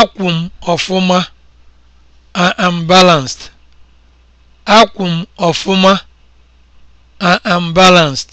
akwụ m ọfụma I am am balanced